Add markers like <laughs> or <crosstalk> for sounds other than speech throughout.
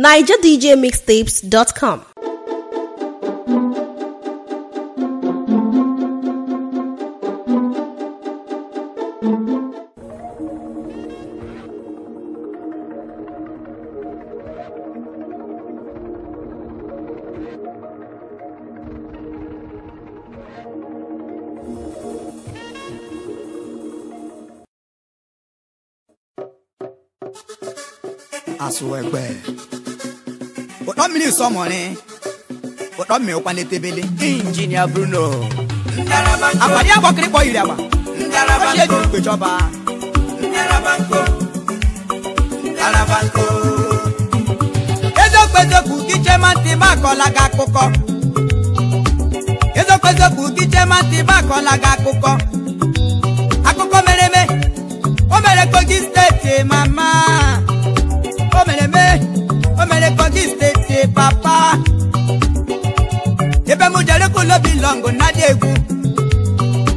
nigerdjmixtapes.com. Aṣọ ẹgbẹ́. mmiri nsọmọrị ụtọ mmiri ụkwa n'etebele injinia Bruno abalị agbọkịrịkpọ yiri agba ochi ejiri mkpe chọba eziokwu eziokwu kichema ntị m akọla gị akụkọ eziokwu eziokwu kichema akụkọ akụkọ mere mee. o mere Kogi steeti mama o mere o mere kogi steeti papa ebe mụ jere kulo bilọngụ na-adị egwu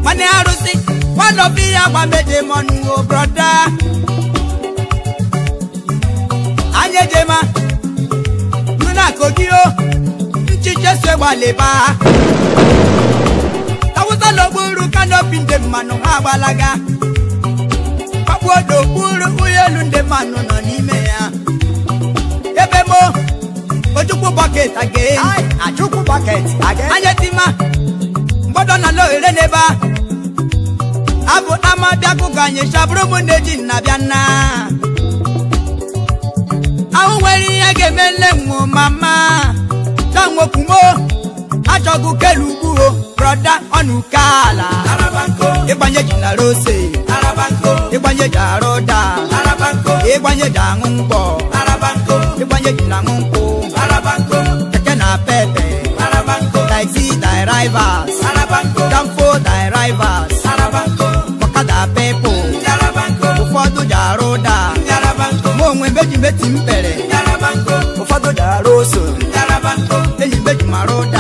nwanne arụsị nwanne obi ya mọnụ o broda anya ejema nụ na o nchiche so gbalịba awụsa na kanopi ndị mmanụ ha agbalaga kpakpuo nokpuru gburu ụlọ ndị mmanụ nọ n'ime ya Chukwu bọket again. A Anya Mgbọdọ na n'ebe a. Abụ ama bịakụ ka anyị na-eji nna bịa nna. Ahụ nwere ihe ga-eme nne nwụ ma! Ta nwokwumo. Achọgụ kelu ugwu o. Broda ọnụ ala. Ịgbanye na rose. Ịgbanye ji Kogi thy rivals, Danfo thy rivals, Okada people, jara ụda, mụ onwe m eji m pere, ụfọdụ jara oso, enyi eji mara ụda.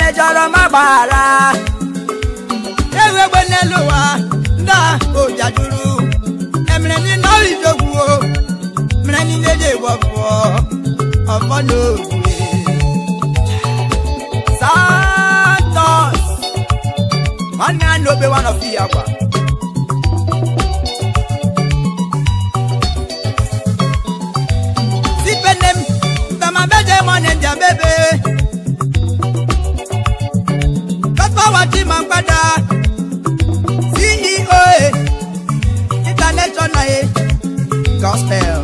mejọrọ ma gbaghara ewegbe n'elu ụwa ndị ojajuru emere niile ọrịjogwuo mere niile dị wọpụọ ọfọ n'obi nwanne ya na obe nwana ofi ya gwa sipene m ma Chima Mkpada CEO International Gospel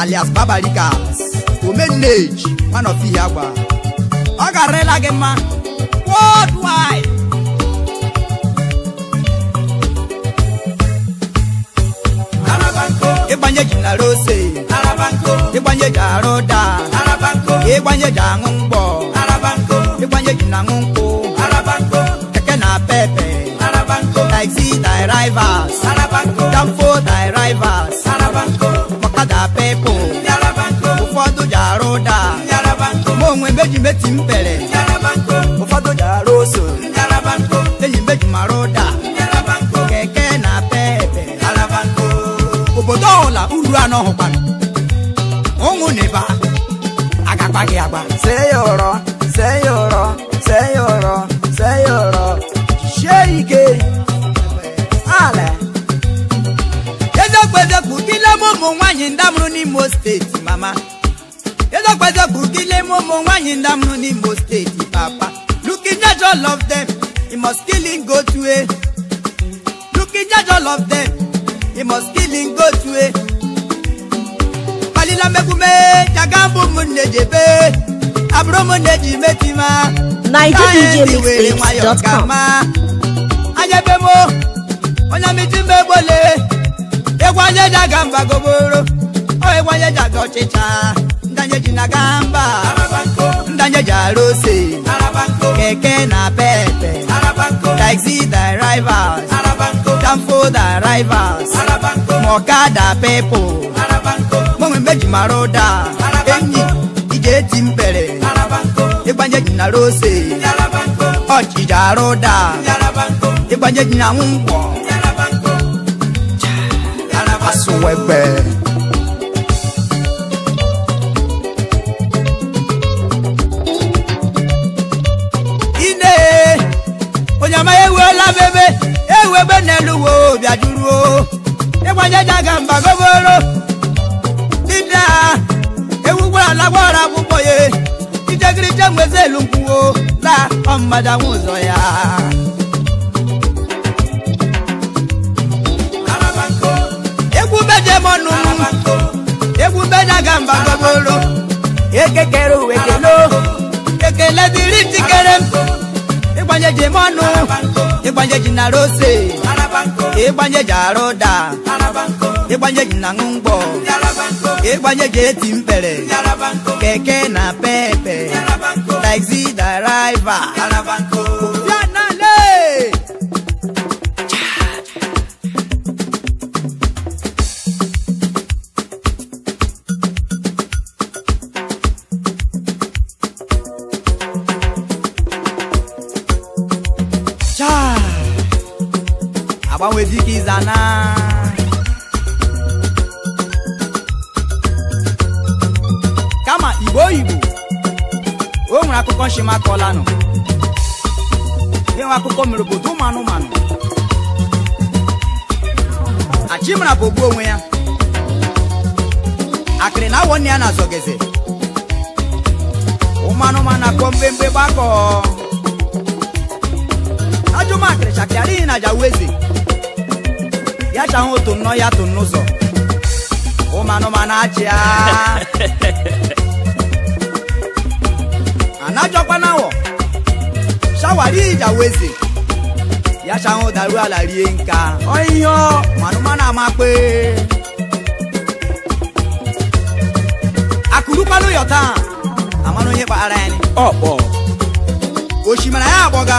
alias Babalikas Omenage one of the agba ọ ga-arịla gị mma worldwide ịgbanye ji nara ose ịgbanye ji arụ daa ịgbanye ji aṅụ mgbọ ịgbanye ji na aṅụ nkwụ Arabanko. Keke na pepe. Arabanko. Taxi thy rivals. Arabanko. Danfo thy rivals. Arabanko. Ọ̀kadà pepo. Arabanko. Ụfọdụ ji arụ ụda. Arabanko. Ma onwe meji meti m pere. Arabanko. Ụfọdụ ji arụ oso. Arabanko. Enyi meji mara ụda. Arabanko. Keke na pepe. Arabanko. Obodo ọhụla uru anọ hụkwana. Ụmụ n'iba. Agakpa gị agba. Sey ọrọ. mama Edokwezogugile momo nwanyi ndamnu n'Imo steeti papa looking judge all of them he must jaga mbụ m abụrụ m eji metima anyị were nwayọ gama anyebe m onye ọ ji aga ọchịcha ndanye ji na gamba mba ndanye keke na pepe taxi drivers tamfo drivers mọkada people mụnwe meji mara ụda enyi ije eti mkpere ịgbanye ji na rose ọchịcha arụ ụda ịgbanye na nwụkwọ nkwọ ewela m ebe ewebe n'elu wo bịajuruo ịgbanye jaga mba goboro dinde a ewugbo ala gbara akwụkwọ ya ijegirije nwezi elu nkwuwo na ọmmadanwe ụzọ ya goboro m ịgbanye ji mọnụ ịgbanye ji na rose ịgbanye ji arụda ịgbanye ji na ṅụ mgbọ ịgbanye ji eti mpere keke na pepe taxi driver chimakọlanụ ịnwe akụkọ mere obodo ụmụ anụmanụ achimara bụ ogbu onwe ya akịrị na awọ nne ya na-azọgeze ụmụ anụmanụ na-akpọ mgbemgbe gbakọ ajụma akịrị chakịarịghị na jawu eze ya chahụ otu nnọọ ya tụ n'ụzọ ụmụ anụmanụ achịa anajọkwana awọ shawari ìjàwezi ya ṣahun dàrú àlà rie nka ọyọ mànúmánà máa pé. àkùrúpa ló yọ̀ tán àmọ́nú yín pa ara ẹni. ọ̀pọ̀. òṣìmọ̀lá yà àbọ̀gá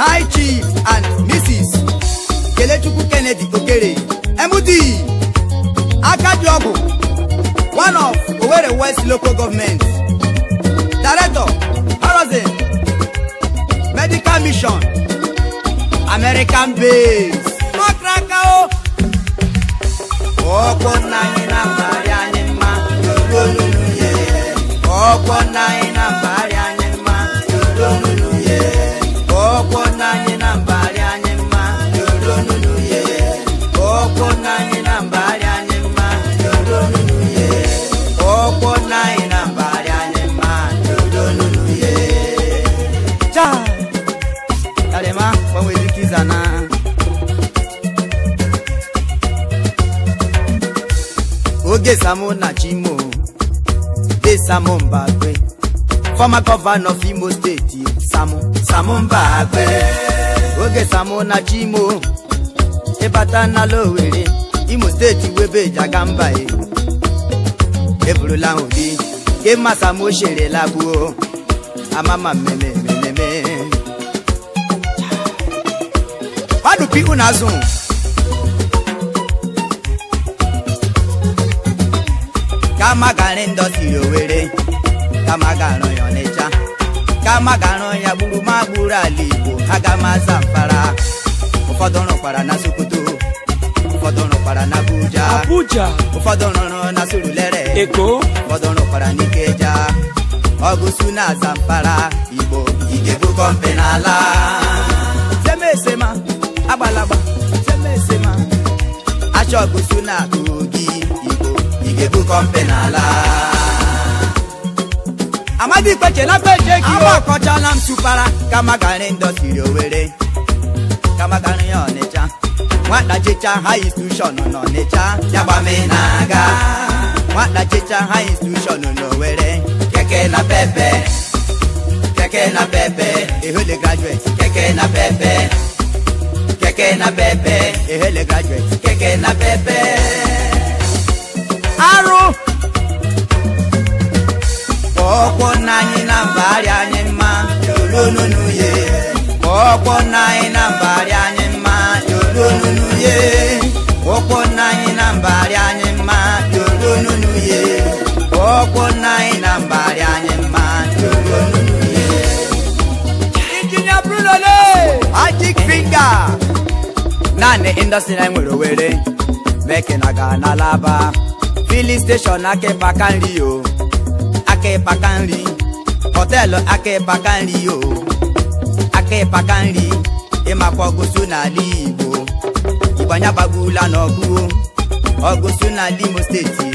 high chief and mrs kelechukwu kennedy okere md akadu ọgwụ one of owerri west local government. Director Horizon Medical Mission American Base Makraka o na-akparị anyị mma na nna Nkesamu Nachimo, Desamu Mbakwe, former governor of Imo State, Samu, Samu Mbakwe, Oge Samu Nachimo, Ebata Owere, Imo State Webe Jagambae, Eburula Odi, Kema Samu Shere Labuo, Amama Meme Meme Meme. Wadu Pi Unazun. ka magara ndọsi owere ka magara ya Ọnịcha ka magara ya gburu ma gburu ala Igbo ga maza mpara ụfọdụ rụkwara na Sokoto ụfọdụ rụkwara na Abuja Abuja ụfọdụ rụrụ na Surulere Eko ụfọdụ rụkwara n'Ikeja ọgụsu na Zamfara Igbo igebụkọ mpe n'ala agbalagba achọ ọgụsu na ga-ebukọ mpe n'ala amadi na peje ki akọchala m tụpara kamagari ndọsiri owere kamagari ya ọnịcha nwata chicha ha institushọn n'ọnịcha yagbame na-aga nwata chicha ha institushọn n'owere keke na pepe keke na pepe ehele graduate keke na pepe keke na pepe ehele graduate keke na pepe arụ ọkwọ nna anyị na mba anyị mma ye ọkwọ anyị na mbagharị anyị ye ọkwọ nna anyị na mbagharị anyị mma na anyị mma naanị nwere meke gaa n'alaba filling station aka ịpaka nri o aka ịpaka nri họteelụ aka ịpaka nri o aka ịpaka nri ịmakwa e ọgụsụ n'ala Igbo ịgbanya gbagbula n'ọgụ ọgụsụ n'ala Imo steeti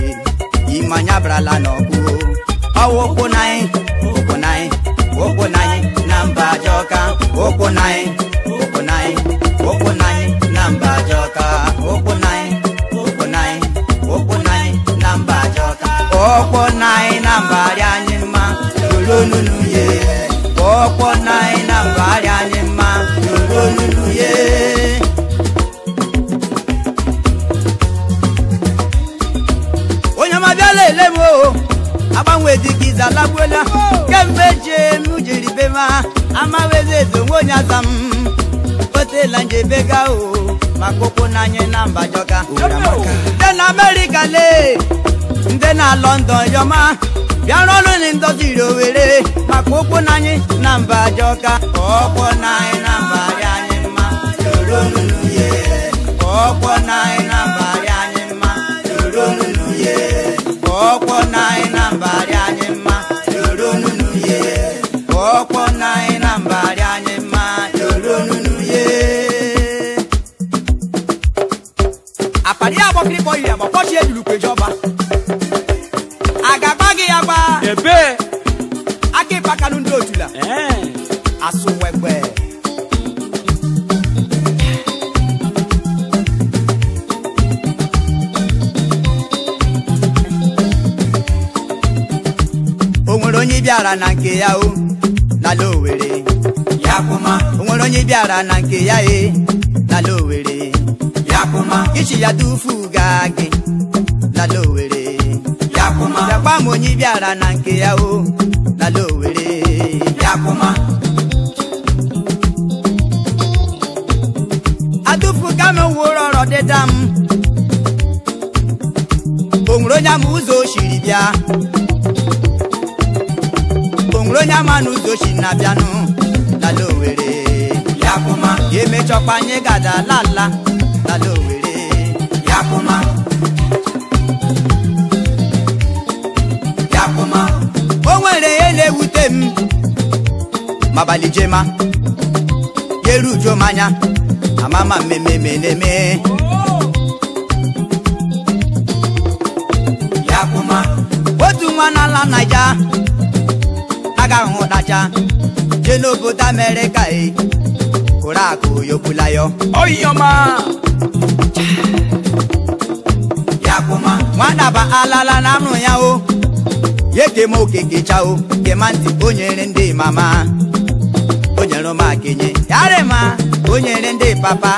ịmanya brala n'ọgụ ọwụ ụkwụ na anyị ụkwụ na anyị ụkwụ na anyị na mba Ajọka ụkwụ na anyị ọkpọ na na mba anyị mma yoro nunu ye ọkpọ anyị na anyị mma yoro nunu ye onye mabịala ele m o agbanwe dị iza kemgbe jee m jiri be ma amawezi eze onwe onye aza m otela gaa o maka ụkwụ na anyị na jọga. dị na amerịka lee ndị na London yọma bịarọrụ na ndoziri owere maka ụkwụ na anyị na mba jọka ọkpọ na anyị na mba dị anyị mma na anyị na mba dị anyị mma ọkpọ na anyị na nke ya o n'ala Owerri o nwere onye bịara na nke ya e n'ala Owerri ichi ya tufu gaa gị n'ala Owerri bịakwa m onye bịara na nke ya o n'ala Owerri atụfuga m nwụrụ ọrọ dịda m o nwere onye ama ụzọ o siri bịa onye ama n'ụzọ ochi na-abịanụ lala owere yakụma emechọkwa anyị gada lala lala owere yakụma yakụma o nwere ya na-ewute m mabalị jema yeruju m anya amama mmemme na-eme otu nwa n'ala naija anacha jee n'obodo amerịka e Oriakụ Oyobulayo oyioma yakuma nwadaba alala na anụ ya o yekema okekecha o kema ntị o ndị mama o nyere ụmụakenye yarịma o nyere ndị papa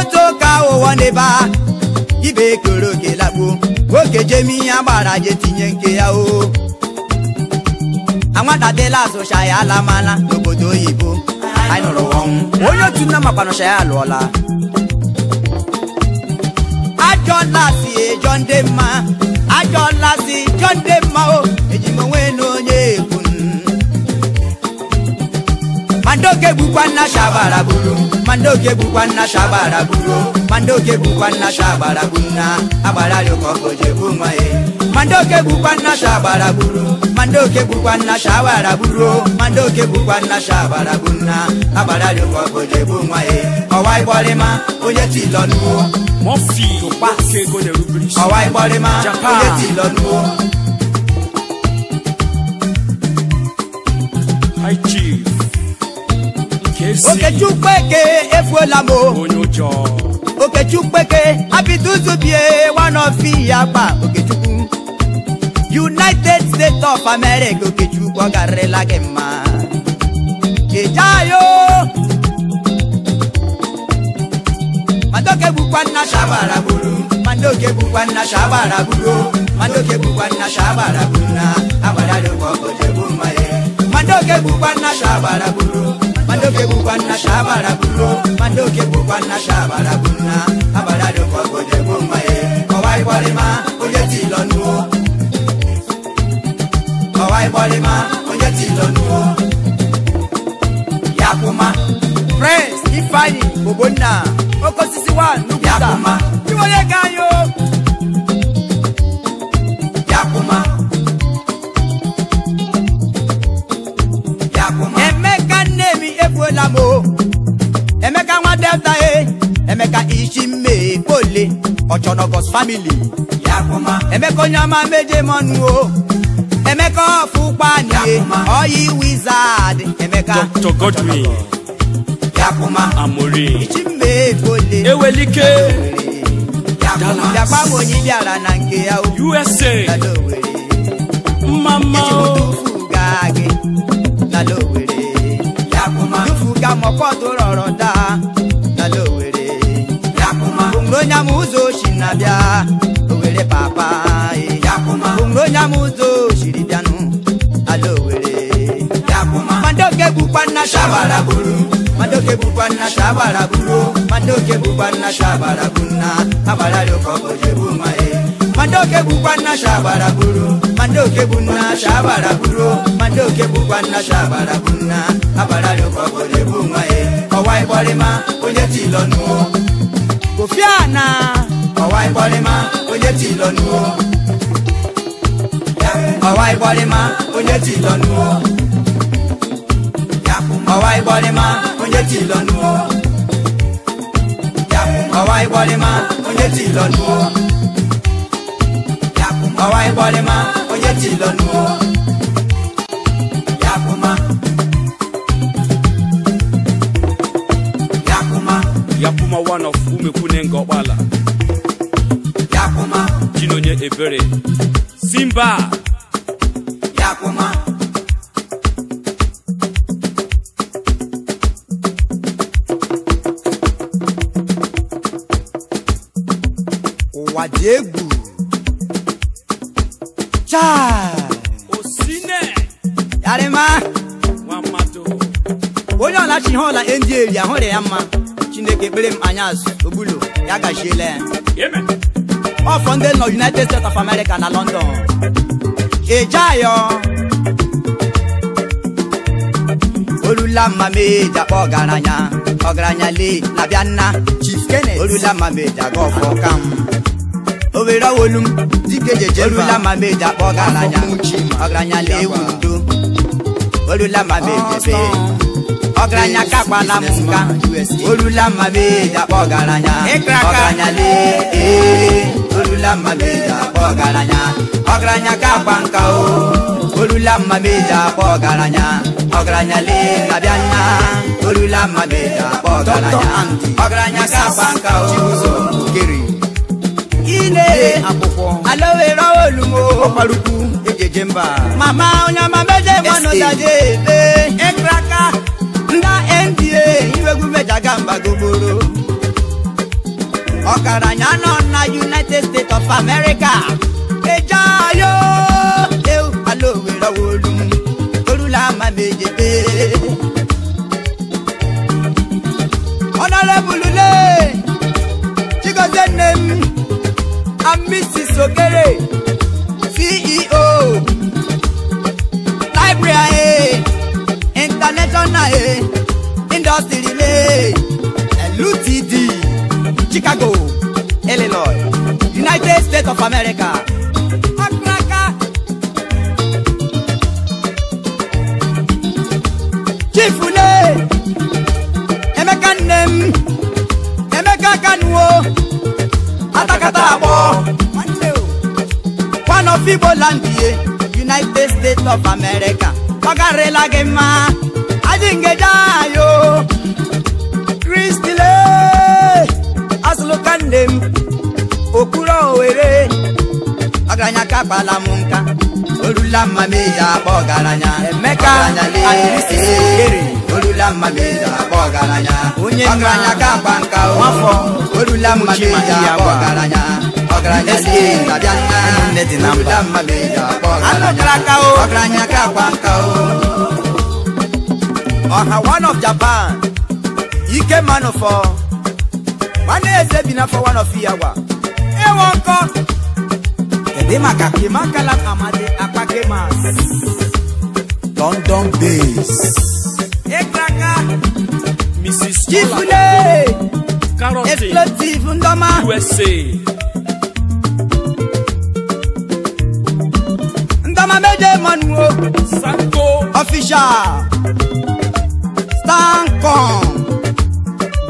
otu ụka ụwa n'ebe a ibe ekere oke lakpuo nwoke jemi ihe agbara je tinye nke ya o anwadadela azụcha ya alamala n'obodo oyibo nụrụ ọnwụ onye otu nna makpanụcha ya alụọla ajọ nlasi ejọ ndị mma ajọ nlasi jọ ndị mma o mandoke bụkwa nna shabara buru mandoke bụkwa nna shabara buru mandoke bụkwa nna shabara buru na mandoke bụkwa nnasha shabara buru mandoke bụkwa bụkwa nnasha shabara buru na agbararị ka ọkụ je ọwa ịgbọrịma onye ti lọ nuwo Okechukwu Eke efuola m Okechukwu Eke abiduzubie one ya kpa Okechukwu United States of America Okechukwu ọ garịrịla gị mma ejeayo mandoke bukwa nna shabara buru mandoke bukwa nna shabara buru mandoke bukwa nna shabara buru na agbara dịkwa ọkọjọ bụ mma mandoke bukwa nna shabara buru mandoke kukwana shabala kuno mandoke kukwana shabala kuna abalale kwagoje kumaye owai bwalema oje tilonuo owai bwalema oje tilonuo yakuma pres ifeanyi ogbonna okosisi wa nukuta iwonye ga delta a eh. emeka isi mee kpole ọchọnọgọs famili emeka onye ọma meje mọnụ o emeka ọfụ eh. wizard emeka Dr. Godwin Amori ewelike na nke ya USA mama onyam ụzọ oshi na-abịa owere papa eh. onwere onyam ụzọ oshiri bịanụ ala owere madoke bụkwa nna shabara bụrụ madoke bụkwa nna shabara bụrụ madoke bụkwa nna shabara bụ nna agbararị ụka ọbọjị bụ eh. ma madoke bụkwa nna shabara bụrụ madoke bụ nna shabara bụrụ madoke bụkwa nna shabara bụ nna agbararị ụka ọbọjị bụ ma ọwa eh. ịkpọrịma onye tilọnụ Obiana ọwa ịkpọrịma onye ti lọnuo ọwa ịkpọrịma onye ti lọnuo ọwa onye ti lọnuo ọwa onye ti lọnuo onye ti ibekwune ngọkpala chinonye ebere simba ụwa dị egwu osine yarịma onye ọlachi ihe ọla ndị eri ahụrụ ya mma Chineke ekpere m anya azụ ogbulo ya gachiela ya ọfọ ndị nọ United States of America na London ejeayọ olula mama eji akpa ọgaranya ọgaranya lee labịa nna Chief Kenneth olula mama eji aga ọfọ kam owere owolu m dike jeje olula mama eji akpa ọgaranya ọgaranya lee wundo olula mama eji ọgaranya ka agbala m olula mmabedi akpọ ọgaranya ọgaranya lee ee olula mmabedi akpọ ọgaranya ọgaranya ka nka o olula mmabedi akpọ ọgaranya ọgaranya lee abịa nna olula mmabedi akpọ ọgaranya ọgaranya ka agba nka o ine alowere olumo okparukwu ejeje mba mama onye mama meje mmanụ daje ebe ekraka jagabagogboro ọkaranya nọ na united states of america eje ayo ewu ala Owerri wolu torula ama m ejebe ọnọlebulule chigozie nne m sogere ceo library eh, international eh. industry remain LUTD, Chicago, Illinois, United States of America. Chief Une, Emeka Nnem, Emeka Kanuo, Atakata Agbo, one of Igbo land United States of America. Ọ garịla gị dị ngejayo kristile azụlụka m akpala m nka olula mma ya ọgaranya emeka adarisisere olula mma m ya ọgaranya onye ọgaranya ka akpa nka nwafọ olula mma m ọgaranya ọgaranya na mma ọgaranya ọgaranya ka akpa ọha one of japan ike for nwanne eze bi for one of yawa ewe nkọ kedu maka kemakala amadi akpakemas london base ịkraka mrs karote explotive ndoma usa ndoma meje manuo sanko official Sancom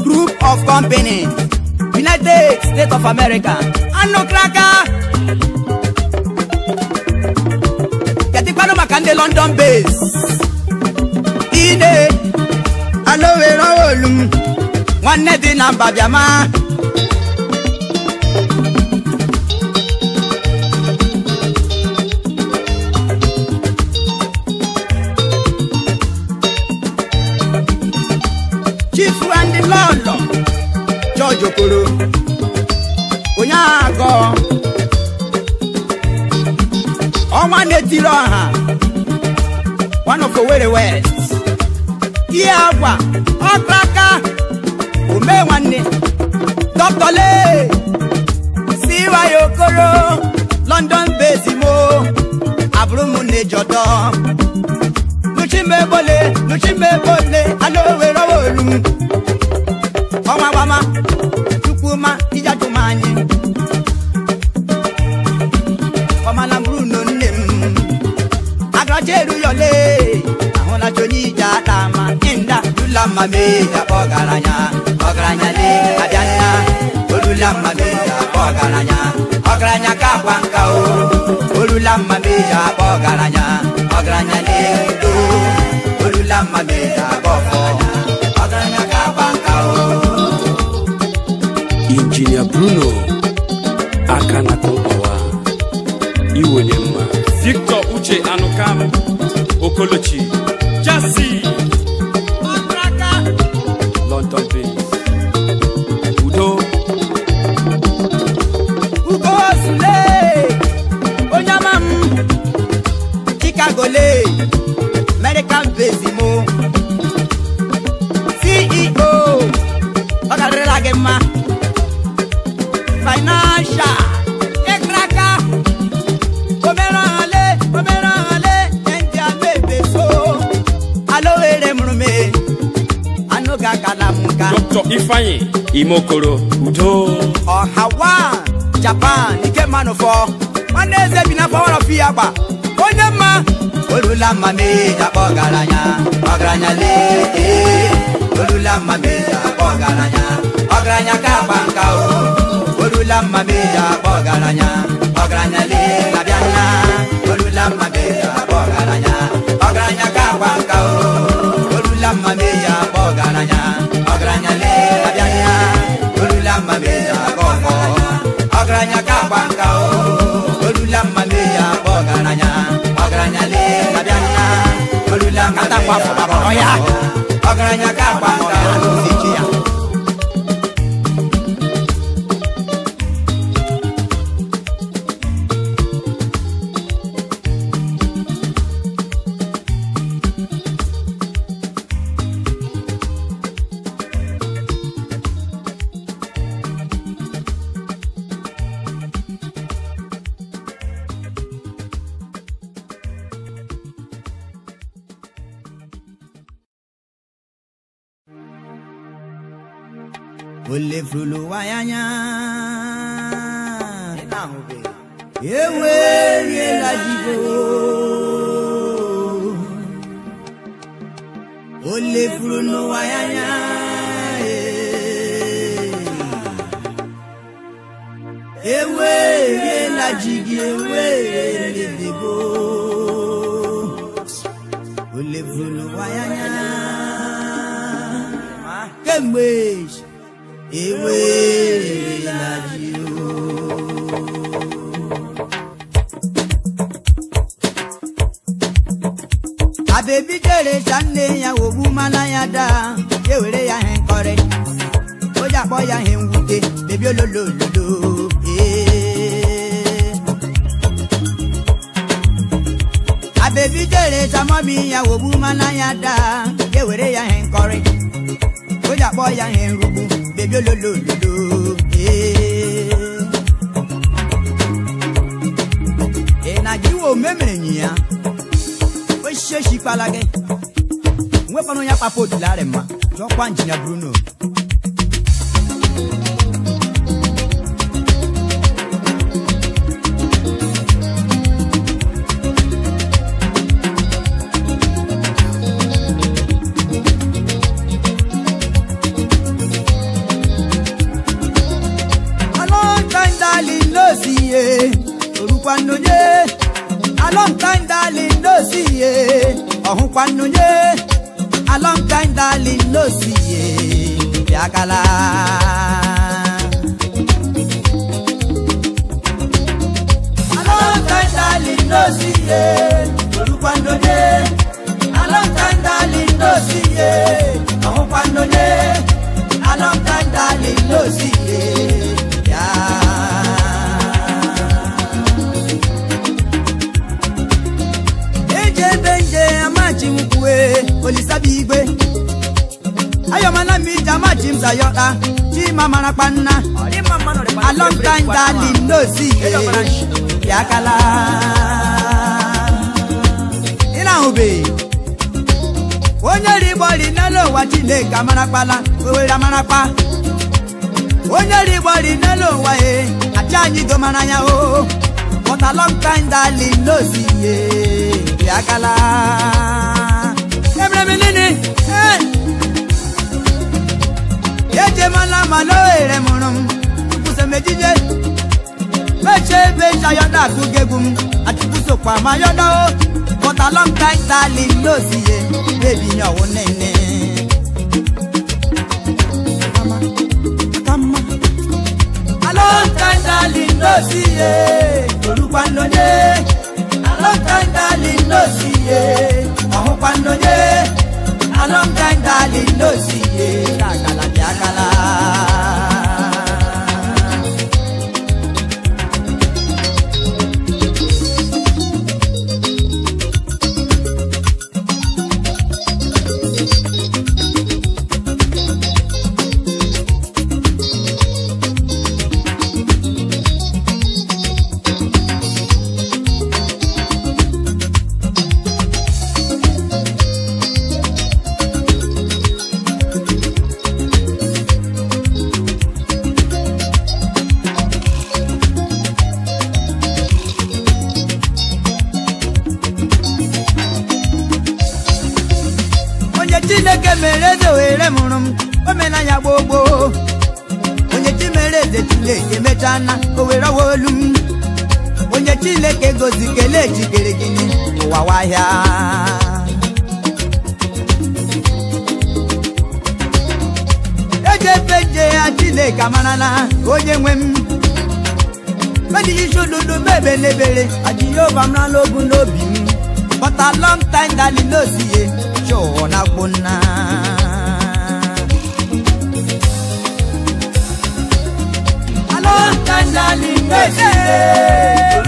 Group of Company United States of America anụ kraka ketikpanụ maka ndị London base ine anowere olu nwanne di na biama jokoro, onye agọ ọnwa na-etiri ọha one Owerri West ihe agwa ọkraka omee nwanne dọktọle siwaya okoro London bezimo abụrụ m na-ejọdọ nuchimebole nuchimebole ana owere olu m ọnwa gbama ọfụma ịjajụ m anyị ọmala bụrụ no nne m agaracha eru yọle ahụlacha onye ije ata ma ịnda dula mma mee ya kpọ ọgaranya ọgaranya le abịa nna olula mma mee ya kpọ ọgaranya ọgaranya ka akwa nka o olula mma mee ya kpọ ọgaranya ọgaranya le do olula mma mee ya ọgaranya. Kolochi ifeanyị imokoro udo ọhawa japan ike manụfọ nwanne eze bi na power of ya gba onye mma olula mma meja akpọ ọgaranya ọgaranya lee olula mma meja akpọ ọgaranya ọgaranya ka agba nka o olula mma meja akpọ ọgaranya ọgaranya lee Oh. olula ọgaranya ọgaranya lee nna lololololo. Eh. Abebi jere tamọ bi ya wogbu mana ya daa, e were ya he nkọrị, o ji akpọ ya he nrugbu, bebi ololololo. Ị na-ajụwa omemere mere ya, o shishi kpala gị, nwekwara onye akpapụ odila rị ma, jọkwa njinia Bruno. ọhụkwanunye alọmtaim dalin n'osiye ọhụkwanunye alọmtaim dalin n'osiye bịakala alọmtaim dalin n'osiye n'osiye olisabigwe ayọmọlá mi jama james ayọta chima marapanna alọmtan dali ndozi yakala ịna-ahụbe onye rigbori n'elu ụwa chineke amarakpala owere amarakpa onye rigbori n'elu eh. ụwa e achị anyị domara ya o oh. but alọmtan dali eh. ya yakala minini eh. yeje mala malo ere murum kuse mejije meche becha yoda tugegum atibuso kwa mayoda o but a long time tali losiye baby nyawo oh, nene kama kama a long time tali losiye olukwa nlode a long time tali losiye. ọhụkwa nnonye alọngaịdali n'ozi ihe akala dị akala ngozi kelee jikere gị n'ụwa wahịa ejefe ya chineke mara na onye nwe m medilisododo mebelebere ajiyova m rala ogu n'obi m lọng a long time ihe chụọ na gbonna a long time dalilosiye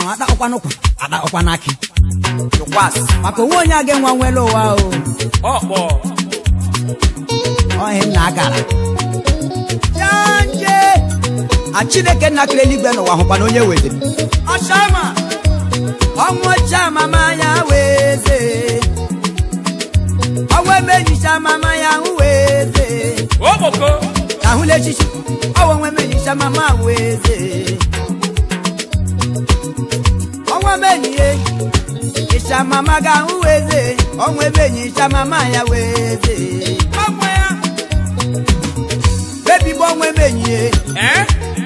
ọkwanụ atakpọkwanụ kwa atakpọkwanụ akị maka onwe onye a ga-enwe nwere ụwa o ọhị nna gara janje a chineke nna kere eluigwe n'ụwa hụkwana onye weziri ọnwụ ọcha mama ya weze ọnwụ emejicha mama ya weze ahụla echichi ọnwụ enwe emejicha mama weze E. enyi enyi Ichamama ga ahụ weze ọnwa e? ebe enyi ichamama ya weze ya. ọnwa ebe enyi ye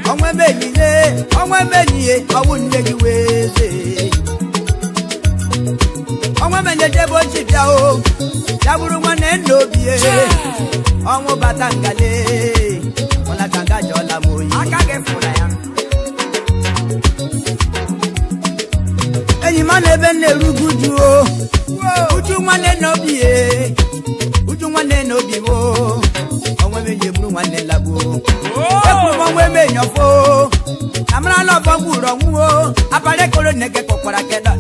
ọnwa ebe enyi ye ọnwa ebe enyi ye ọwụ nne gị weze ọnwa ebe enyi ebe ochi bịa o ya bụrụ nwanne nna obi e. ọnwụ bata ngale ebe na-erugu juo uju na o onwe nwanne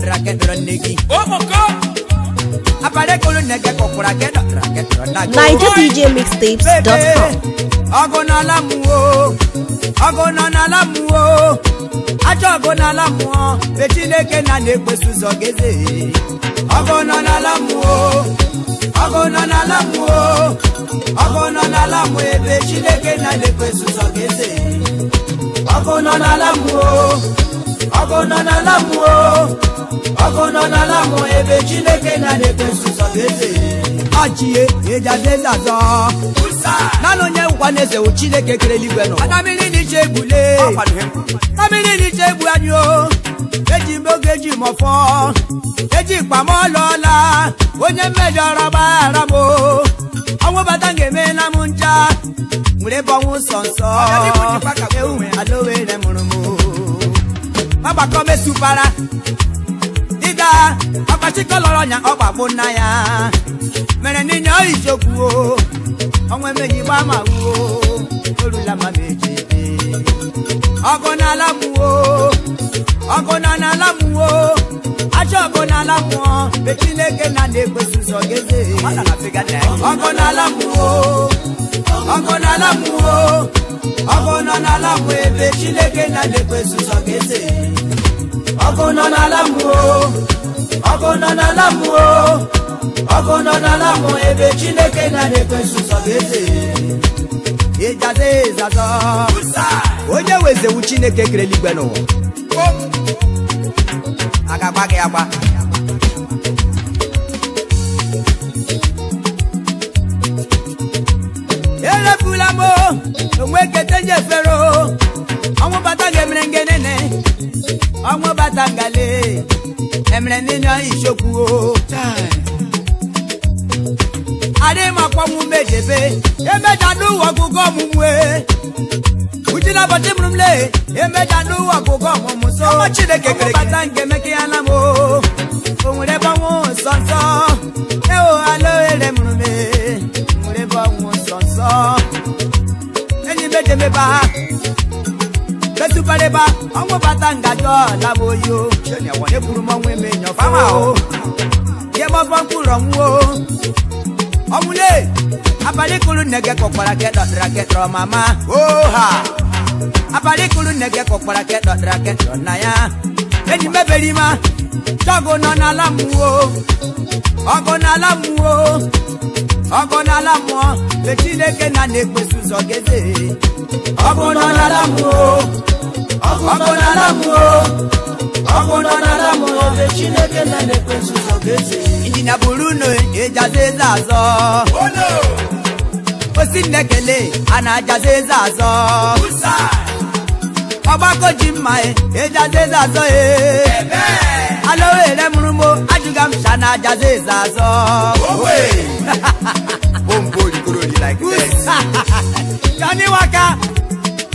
na kedọrọ nne gị abalị kedọrọ nna gị ajọ ọgụ n'ala mmụọ be Chineke na na-ekpeso ụzọ geze ọgụ nọ n'ala mmụọ ọgụ nọ n'ala mmụọ ọgụ nọ n'ala mmụọ ebe Chineke na na-ekpeso ụzọ geze ọgụ nọ n'ala mmụọ ọgụ nọ n'ala mmụọ ọgụ nọ n'ala mmụọ ebe Chineke na na-ekpeso ụzọ geze ọchie ịjadeze azọ naanị onye nkwa na eze wụ chineke kere eluigwe nọ mmiri n'iche egbule na n'iche egbu o eji m oge eji mọfọ eji mkpa m ọlọọla onye mmejọrọ gbaghara m ọnwụ bata ga-eme na m ncha nwere nsọ nsọ ewu mụrụ agbakọ mesupara aka ọkpachika lọrọ nya ọgbagbo nna ya mere n'inya oyijokwuo ọnwa emeghị gba ma wuo orula ma meji ọgụ na ala ọgụ na n'ala mụwo ajọ ọgụ na mụọ be na na-ekwesị ụzọ geze ọgụ na ala ọgụ na ala ọgụ nọ n'ala mụọ ebe chineke na na-ekwesị ụzọ geze ọkụ nọ n'ala mmụọ ọkụ nọ n'ala mmụọ ọkụ nọ n'ala ebe chineke na na-ekwesu sọ ga-eze onye wezewu chineke kere eluigwe n'ụwa agba gị agba erefula m onwe kete ọnwụ bata ga-emere ngenene ọnwụ bata ngale emere ndị nọ ichokwu adịghị m mejebe emeja n'ụwa ọgụgụ ọmụmụ e. uji na ụbọchị mụrụ m lee emeja n'ụwa ọgụgụ ọmụmụ so chineke kere bata nke emeke ya na Onwere o ewo e alo esukwaleba ọnwụ bata ngaji ọla o eburu m ọnwụ eme nyọfama o ihe mkpụrụ abalị kụrụ mama oha abalị kụrụ ya enyi Chago nọ n'ala mmụọ ọgọ n'ala mmụọ ọgọ n'ala mmụọ mgbe Chineke na na-ekpesu ụzọ geze ọgọ nọ n'ala mmụọ ọgọ n'ala mmụọ ọgọ nọ n'ala mmụọ mgbe Chineke na na-ekpesu ụzọ geze injinia buru unu ejaza eze azọ osi nnekele a na-ajaza eze azọ ọgbakọ ji mma ejaza eze azọ ee alowere mụrụ mo ajụga m sha na ajaza eze azọ <laughs> kaniwaka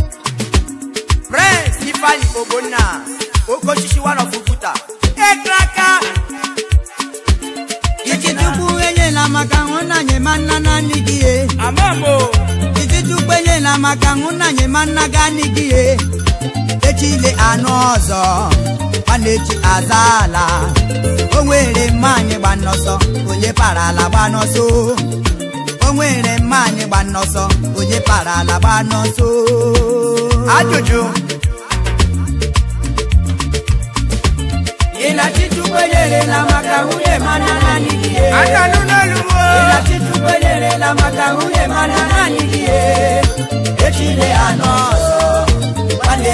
<laughs> prince na ogbonna okochichi one of Iki ekraka enye la maka hụnanye ma nna na Iki enye la maka ma nna gị echile anụ ọzọ ọ na-echi aza ala o nwere mmanyị gba nnọsọ onye para ala gba n'ọsọ o nwere mmanyị gba nnọsọ onye para ala gba n'ọsọ ajụjụ ị na-achịchukwu enyere na maka nwunye ma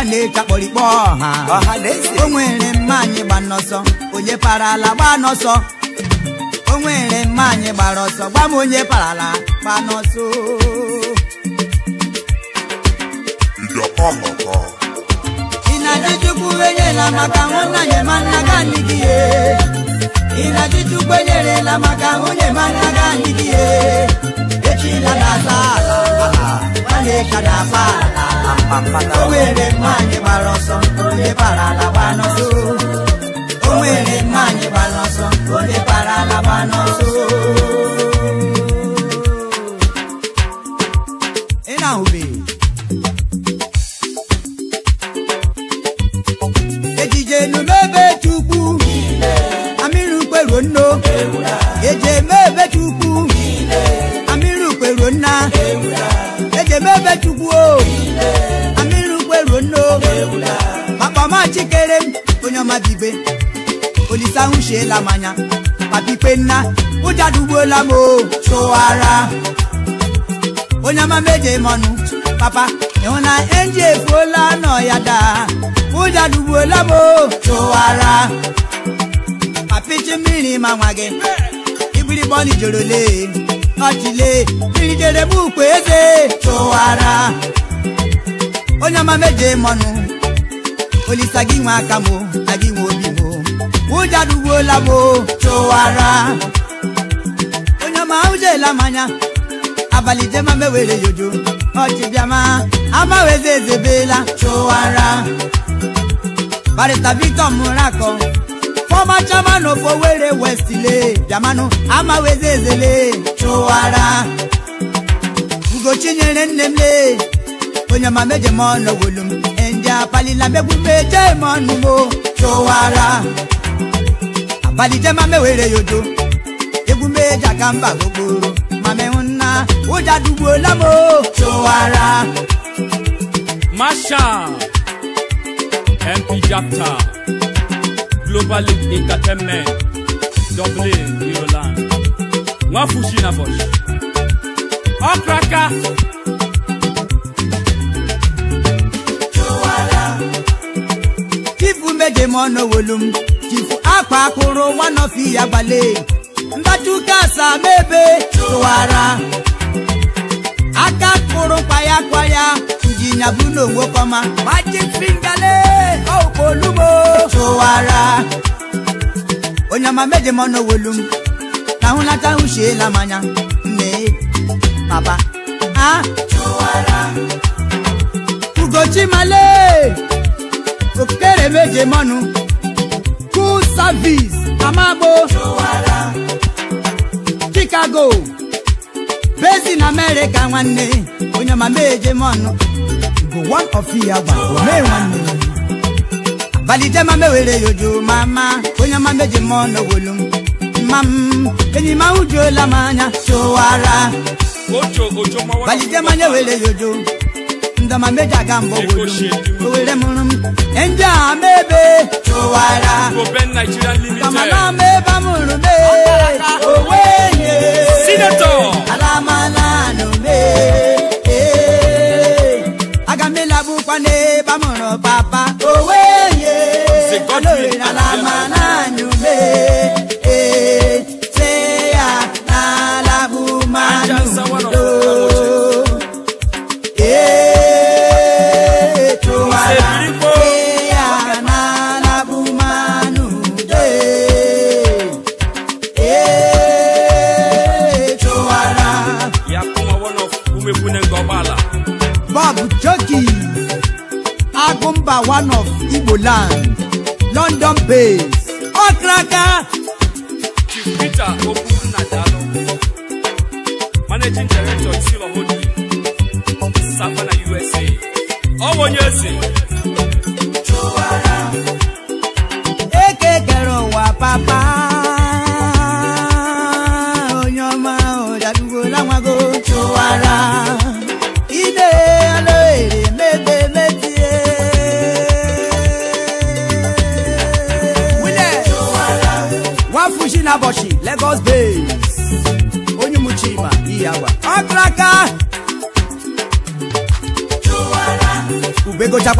ọ na-eji akpọrikpọ ọha o nwere mma anyị gba n'ọsọ onye parala gba n'ọsọ o nwere mma anyị gbara ọsọ gba m onye parala gba n'ọsọ ị na-ajụ chukwu enyela maka ga nigi ye enyerela maka nwunye mana ga ye echila na-ata ala na-eka o nwere anyị gbara ọsọ onye bara ala gbaa n'ọsọ onye ala n'ọsọ ibe olisahu sheela m anya papa ipenna ụja chụwara onye amama meje m papa ịhụ na enji efuola nọ ya daa ụja dugbuola m o chụwara papichi mmiri ma nwa gị gị nwa aka ụjọ duwola m chụwara onye ọma ụjọela m anya abalị jema mewere yojo ọchịbịama amaweze ezebela chụwara barịta victor murakọ fọma chairman of were West le bịamanụ amaweze ezele chụwara nyere nne m lee. onye ma meje m ọnụ wolu m ndị apalila megbu meje m ọnụ m chụwara malite ma mewere ya odo egwu meja ka mba gbogbo ma menwu nna ụja dugbuola m chụwara Marshal MP Japta Global League Entertainment Dublin, Ireland nwafushi na bọsh ọkraka Chifu meje m ọnụ wolu m chifu akwa akụrụ fi ya gbale mbachuka mebe. tụwara aka kpụrụ kwaya kwaya njinya bụ n'onwe kọma majik fingale okpolugbo tụwara onye ọma meje m welu m hụ nata hụchiela manya mee Baba. ha ugochimale okere meje mọnụ Service Amagbo Chicago na America nwanne onye mama ejemọnụ bụ one of ya gwa mee nwanne balite mama were yojo mama onye mama ejemọnụ wolu mam enyi ma ujuola m anya chowara balite mama were yojo ndọ ma meja ka mgbọgwụ owere mụrụ m ndị a mebe chụwara kama na ama mụrụ ala ma anụme aga m ịlagbukwa n'ebe mụrụ papa owenye ala ma na Igboland London based ọkraka Chief Peter Okwunnadalụ Managing Director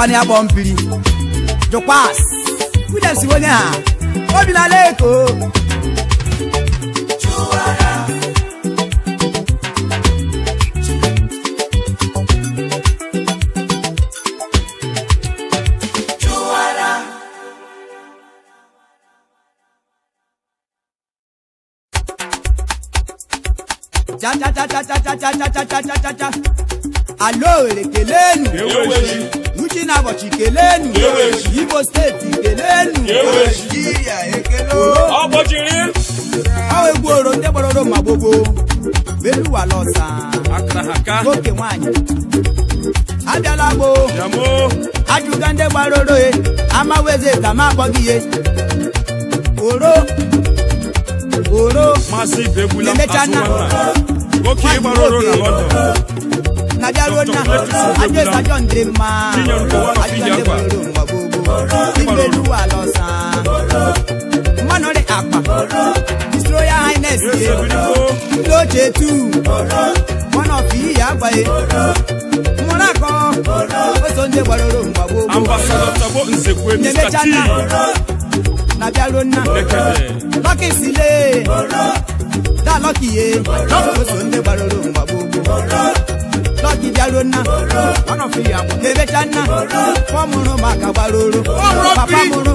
na ya gbọ mpiri jụkwas Williams onye ha obi na-ala eko Uchi na abọchị kelenu Igbo steeti kelenu egbuoro ndị gbaroro ma gbogbo beluwala Nwoke oke nwanyị abịala gbo ajụga ndị gbaroro e amaweze ka ma akpọghị ihe oro oro emechana na bịaruo nna ajọ ajọ ndị mma ajọ ndị nwere ụwa gbogbo imelu ala ọsa mmanụrị akpa His Royal Highness ye ndị ochie tu mmanụ ọfụ akọ gbaroro nna gbaroro jidalụ nna ebecha nna fọmụrụ maka gbalụrụ papa mụrụ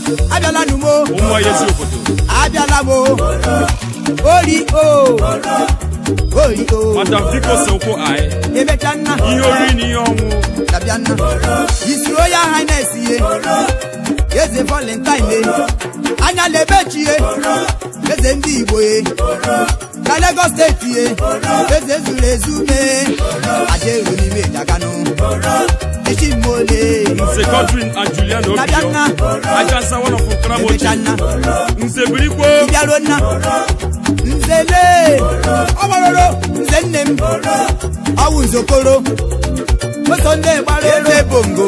abiala numo abịala mo ori o ori o emecha nna ihe oriri na ihe ọnwụ dabịa nna isuro ya hines ihe eze valentine anya na-ebechi ihe eze ndị igbo na Lagos steeti eze zuru ezu mee ajeru n'ime Ijakanu Echimole Nze Godwin Ajulian Obiyo Ajansa one of Ukramoji Nze Birikwo Ibiarona Nze Le Ọmọrọrọ Nze nne m Ọwụ Nzokoro Oso nne gbara ebe bongo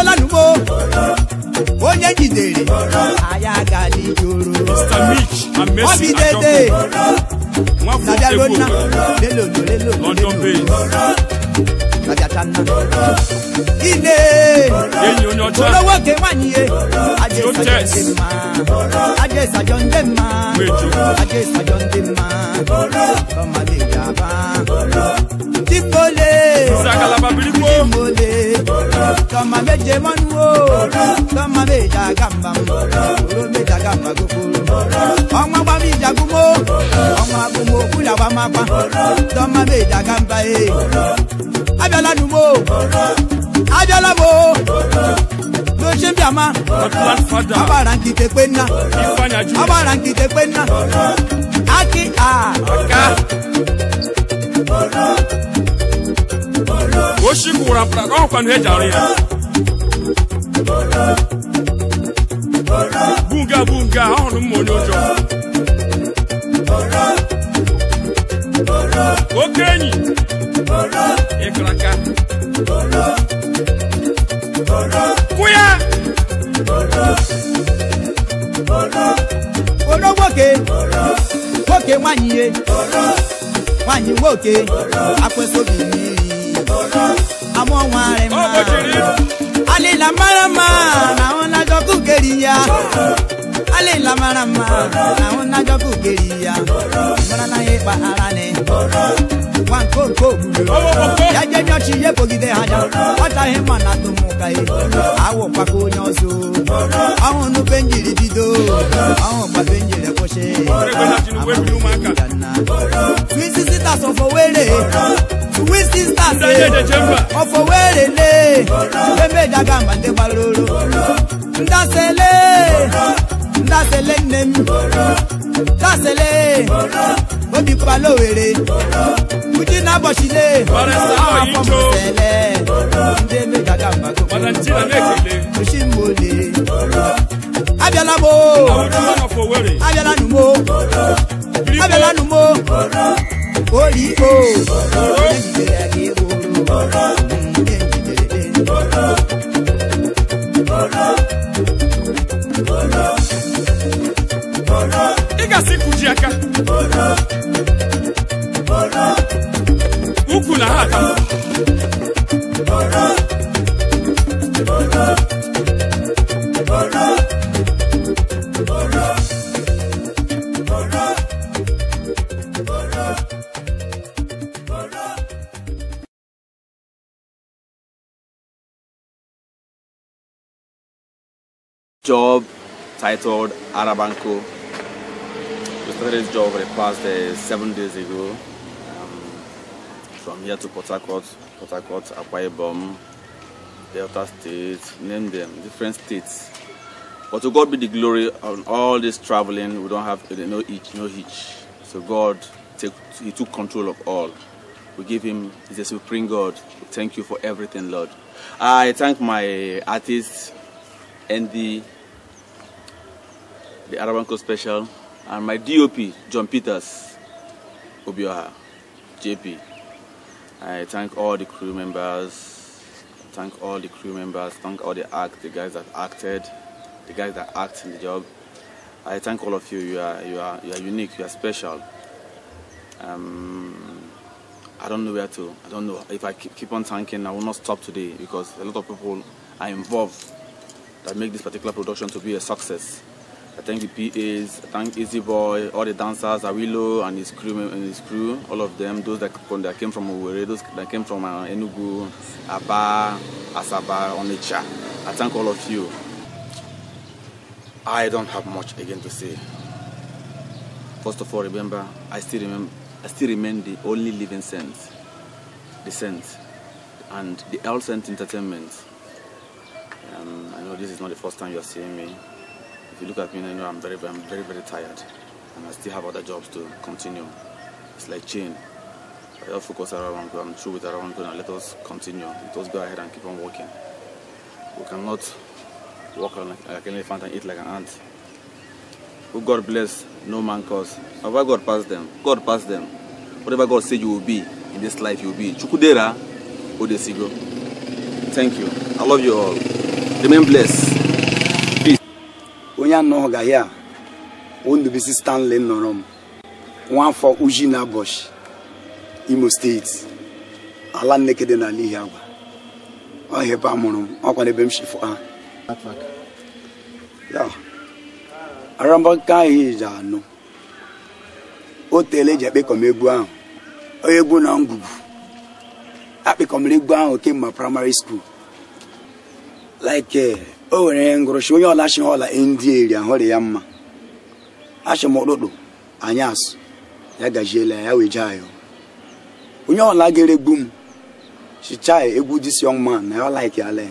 onye lanumo onye jidere anya gali joro obi dede nabiarona lelolo lelolo lelolo nabiatanna ine olowo ke nwanyi ye ajé sajọ ndị mma ajé sajọ ndị yaba kama meje manu o kama meje oshi gwụrụ apụta na ọkwa na eji ya bụ nga bụ nga ahụrụ mma onye ụjọ oke enyi ịkara aka kwụ ya oro nwoke nwoke nwanyị ihe nwanyị nwoke akwesịghị amụọ nwarị mma alịla mara mma na ahụ na-ajọkụ keri ya la mara mma na-ajọ kugeri ya mara na ya ịkpa ara ni ya ma na atụmụka awụ kpaka onye ọzọ ọhụ nupe bido ọhụ kpape njiri kwụsị twin sisters of Owerri twin sisters of le ndasele dasele nne m dasele obi kpala were, uji na ụbọchị le osimole abịala m abịala numo Abiala numo Abiala numo. gị oro Bolo, bolo, ị ga-asị kụji aka Ụkwụ na ha aka job titled Arabanco We started this job for the past uh, seven days ago. Um, from here to Port Harcourt, Port Harcourt, Akwa Delta State, name them, different states. But to God be the glory on all this traveling. We don't have no each no hitch. So God, take, He took control of all. We give Him, He's a supreme God. We thank you for everything, Lord. I thank my artist Andy, the Arabanco Special, and my DOP, John Peters Obioha, JP. I thank all the crew members, thank all the crew members, thank all the act, the guys that acted, the guys that act in the job. I thank all of you. You are you are you are unique. You are special. Um, I don't know where to. I don't know if I keep, keep on thanking. I will not stop today because a lot of people are involved that make this particular production to be a success. I thank the PAs, I thank Easy Boy, all the dancers, Awilo and his crew, and his crew, all of them, those that, that came from owere those that came from uh, Enugu, Aba, Asaba, Onitsha. I thank all of you. I don't have much again to say. First of all, remember, I still remember, I still remain the only living saint, the saint, and the L Saint Entertainment. Um, I know this is not the first time you're seeing me. If you look at me now, you know I'm very, I'm very, very tired, and I still have other jobs to continue. It's like chain. I just focus around one goal. I'm through with around goal, and let us continue. Let us go ahead and keep on working. We cannot walk like, like an elephant and eat like an ant. Who God bless, no man cause. However God pass them, God pass them. Whatever God say you will be in this life, you will be. Chukudera Odesigo. Thank you. I love you all. Remain blessed. onye anọghị ya Ndubisi Stanley nọrọ m nwafọ uji na abọchị Imo steeti ala Nneke dị n'ala Ihiagwa ọhịa ebe a mụrụ m ọkwa n'ebe m shifụ ha arambaka ahụ ji anụ o e ji eji akpịkọm egwu ahụ onye egwu na ngwugwu akpịkọmere egwu ahụ kemgbe praịmarị skuul like eh, o nwere ngụrụchi onye ọla chi ọla ndị eri ahụrị ya mma achịm m anya asụ ya gajiela ya ji ayọ onye ọla ga-eregbu m chichaa egwu this young man na ya ola-ike ala ya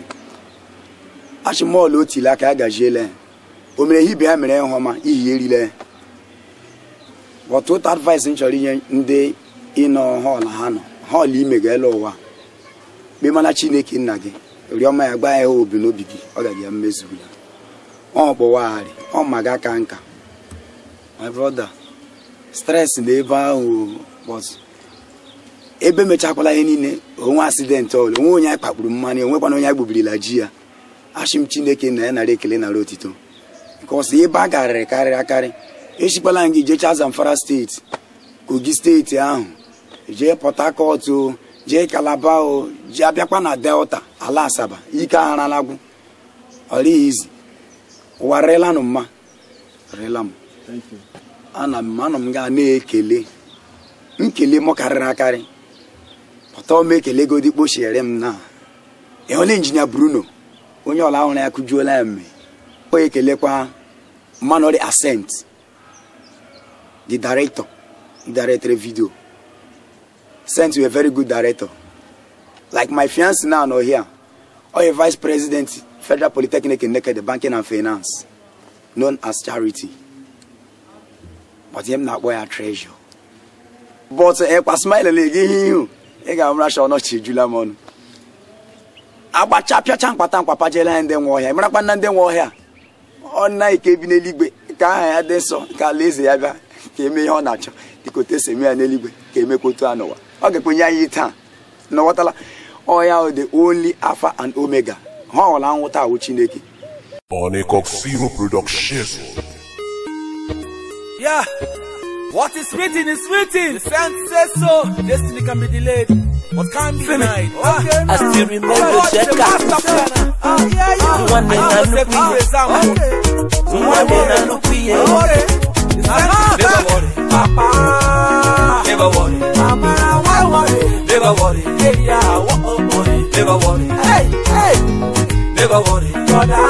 achị m ọla otili aka ya gajiela o mere ihe ibe ya mere nhoma ọma ihi erile ya ọtụtụ advice m chọrọ inye ndị ịnọ hall ha nọ hall ime ụwa kpemana chineke nna gị rịọma ya gba ya obi n'obi gị ọ gaghị ya mmezu ọ gbọwagharị ọ ma gị aka nka my brother stress na ebe ahụ ebe mechakwala ihe niile onwe asidentị ọla onwe onye anyị kpakpuru mmanụ onwekwana onye anyị gbuburila ji ya achị chineke na ya nara ekele nara otito nke ọsọ ebe a garịrị karịrị akarị echikwala gị jee Zamfara steeti kogi steeti ahụ jee Port Harcourt jee kalaba o ji abịakwa na delta ala asaba ike agharalagwu izi ụwa rịlanụ mma rịla m ana m anọ m gaa na-ekele nkele m karịrị akarị pụta m ekele godi kpochiere m na ịhụla injinia bruno onye ọla ọhụrụ ya kụjuola ya mme ọ ekelekwa manori asent the director director vidio sent you a very good director. Like my fiance now, not here, or a vice president, Federal Polytechnic in Naked Banking and Finance, known as Charity. But him not where I treasure. But eh, a uh, smile again, ị ga-amara sha ọnọchi ejula m ọnụ agbacha pịacha mkpata mkpapa jela ya ndị nwa ọhịa marakwa na ndị nwa ọhịa ọ na ike bi n'eluigwe ka aha ya dị nsọ ka alaeze ya bịa ka eme ihe ọ na-achọ dịka otu esi eme ya n'eluigwe ka emekwa otu a n'ụwa ọ ga-ekwenye anyị taa na ghọtala ọya the only alpha and omega ha ọwụla nwụta awụ chineke what is written is written. The says so. Destiny can be delayed, but can't be denied. Ah, I still remember oh, yeah, ah, Never worry, Papa. Never worry, Papa. Why worry? Never worry, hey ya, what oh boy. Never worry, hey hey. Never worry, brother.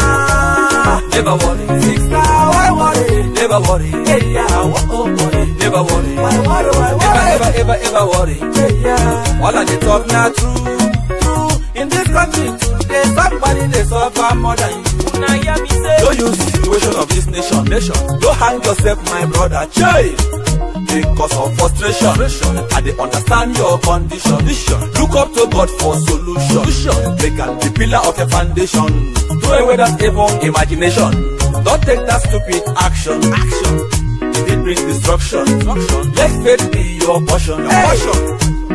Never worry, sister. Why worry? Never worry, hey ya, what oh boy. Never worry, why worry, why worry? Never worry. in dis country today somebody dey suffer more than you na hear me say no use the situation of this nation nation no hang yourself my brother chey because of frustration i dey understand your condition look up to god for solution make am be pillar of your foundation throw away that evil imagination don take that stupid action action e bring destruction let faith be your portion your portion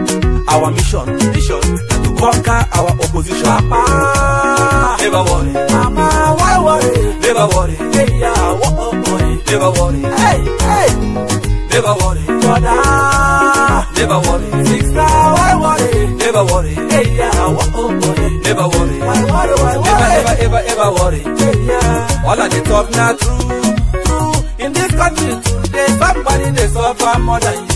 our mission, mission to conquer our opposition. Papa, never worry. Mama, why worry? Never worry. Hey, yeah, what up, oh, boy? Never worry. Hey, hey. Never worry. Brother, never worry. Sister, why worry? Never worry. Hey, yeah, what up, oh, boy? Never worry. Why worry? Why worry? Never, never, ever, ever worry. Hey, yeah. All of the talk now true, true. In this country today, somebody they suffer more than you.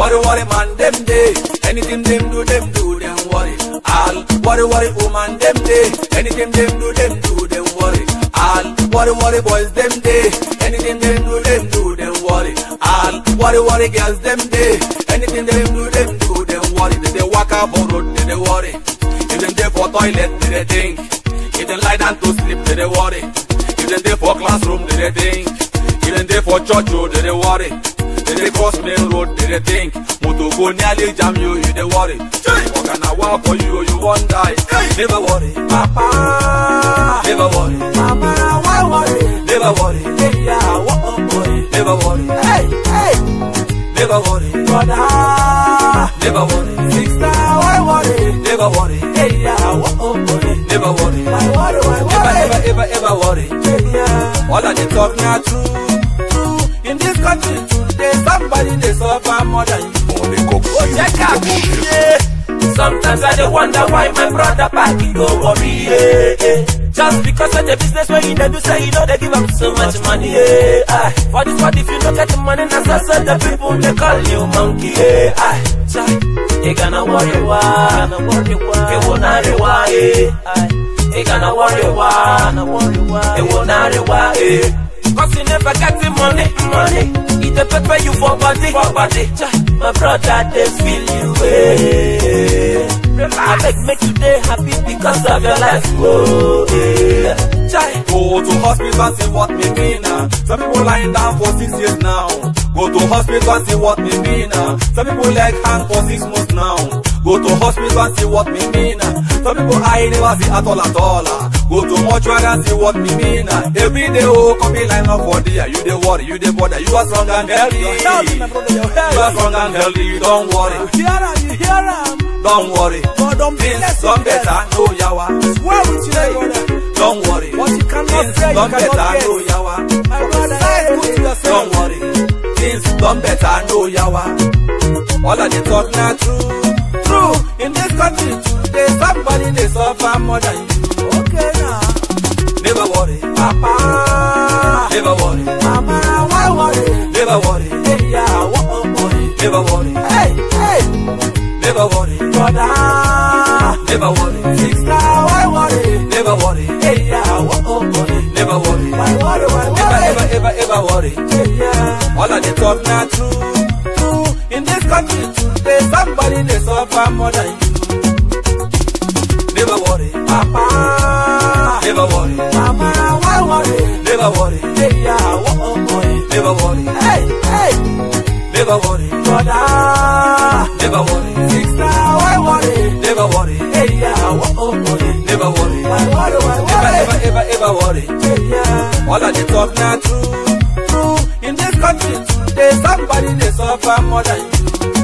Worry, worry, man, them day. Anything them do, them do, them worry. All worry, worry, woman, them day. Anything them do, them do, them worry. All worry, worry, boys, them day. Anything them do, them do, them worry. All worry, worry, girls, them day. Anything them do, them do, them worry. They, dey walk up on road, they, dey worry. If them dey for toilet, they, dey think. If them lie down to sleep, they, dey worry. If them dey for classroom, they, dey think. If them dey for church, oh, they, dey worry. dey cross main road dey dey think motor go nearly jam you you dey worry oga na wa for you you wan die never worry papa never worry mama why worry never worry leya wo oh, boy never worry hey hey never worry brother never worry sister why worry never worry leya wo oh, boy never worry never worry why worry never ever ever worry all i dey talk na true true in this country true. somebody dey suffer more than you. Oh, Sometimes I dey wonder why my brother party go worry. Yeah, yeah. Just because of the business where you dey do, say you no dey give up so much money. Yeah, aye. For this what if you don't get the money, now so, so the people they call you monkey. Yeah, aye. they gonna worry why, gonna worry why, they wanna worry why. They gonna worry why, they worry why. Cause you never get the money, money. It dey pepper you for body, for body. My brother, they feel you way. Eh. I beg, make you day happy because of your life. Whoa, oh, yeah. Go to hospital, see what me mean. Ah. Some people lying down for six years now. Go to hospital, see what me mean. Ah. Some people like hang for six months now. Go to hospital, see what me mean. Ah. Some people I never see at all at all. go to mortuary see what me mean every day oh come be line up for you dey worry you dey bother you are strong and healthy you are strong and healthy you don worry you hear am you hear am don worry things don better no yawa swear with you don worry things don better no yawa don worry things don better no yawa all i dey talk na true true in this country today somebody dey suffer more than you. Never worry. Mama, why worry? Never worry. Hey, yeah, what a worry. Never worry. Hey, hey. Never worry. Brother. Never worry. Sister, why worry? Never worry. Hey, yeah, what a worry. Never worry. Why worry? Why worry? Never, ever, ever, ever worry. Hey, yeah. All of the talk now true. True. In this country today, somebody they suffer more than you. Never worry. Papa. Never worry. never worry. Hey, yeah, oh, oh, oh never worry. Hey, hey, never worry. Brother, never worry. Sister, why worry? Never worry. Hey, yeah, oh, oh, oh never worry. Why worry? Why ever, ever worry. all of the talk now true, true. In this country, today somebody they suffer more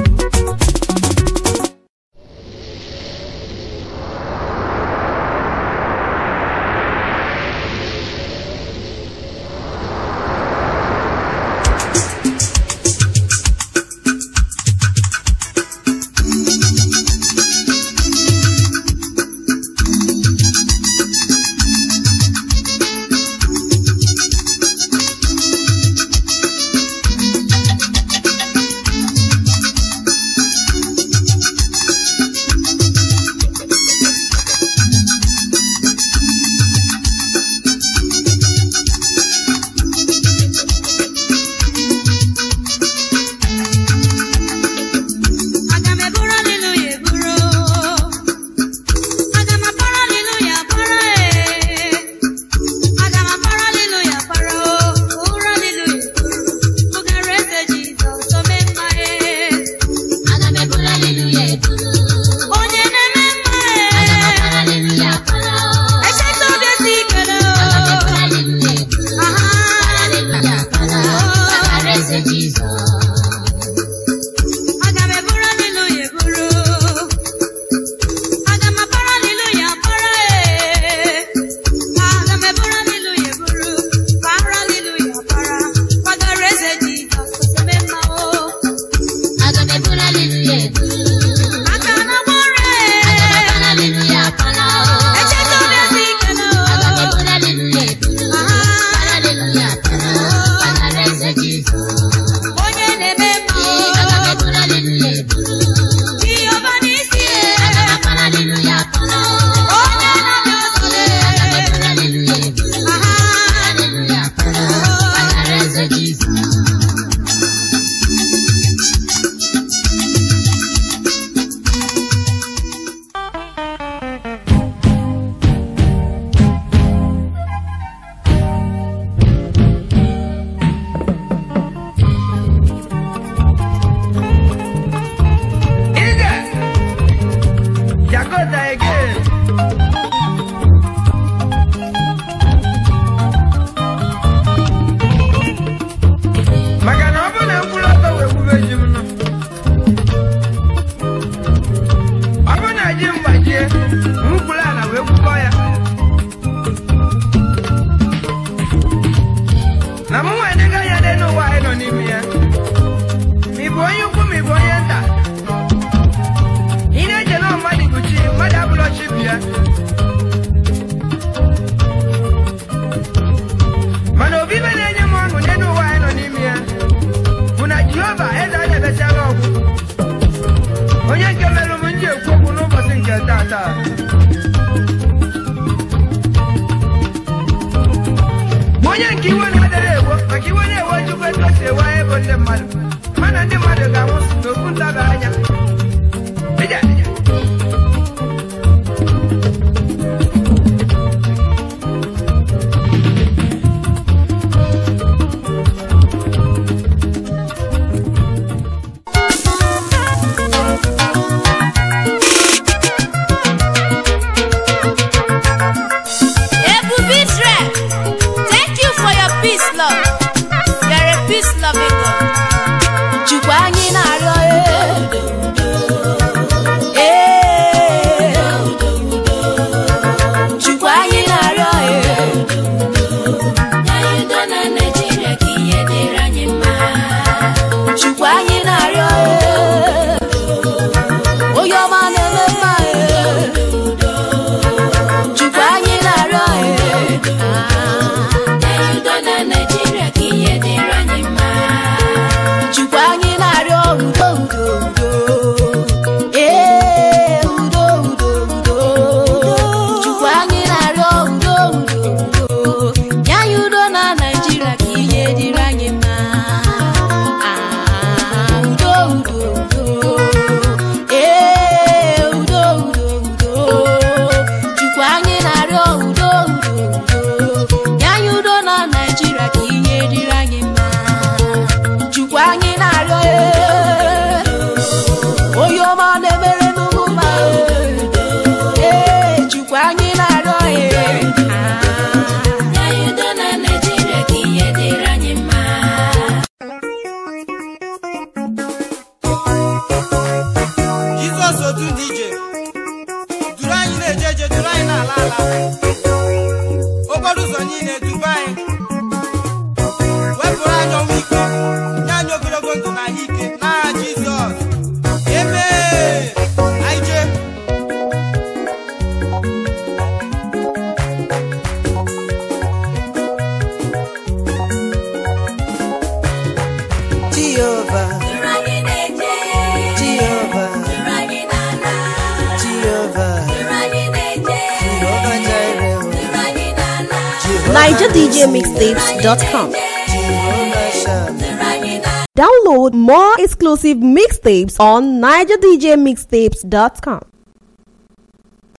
mixtapes on nigerdjmixtapes.com.